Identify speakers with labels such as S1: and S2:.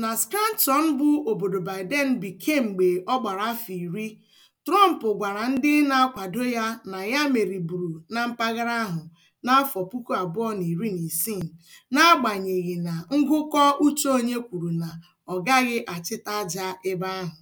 S1: Na skanton bụ obodo Biden bi kemgbe ọ gbara afọ iri, Trump gwara ndị na-akwado ya na ya meriburu na mpaghara ahụ n'afọ puku abụọ na iri na isii, n'agbanyeghị na ngụkọ uche onye kwuru na ọ gaghị achịta aja ebe ahụ.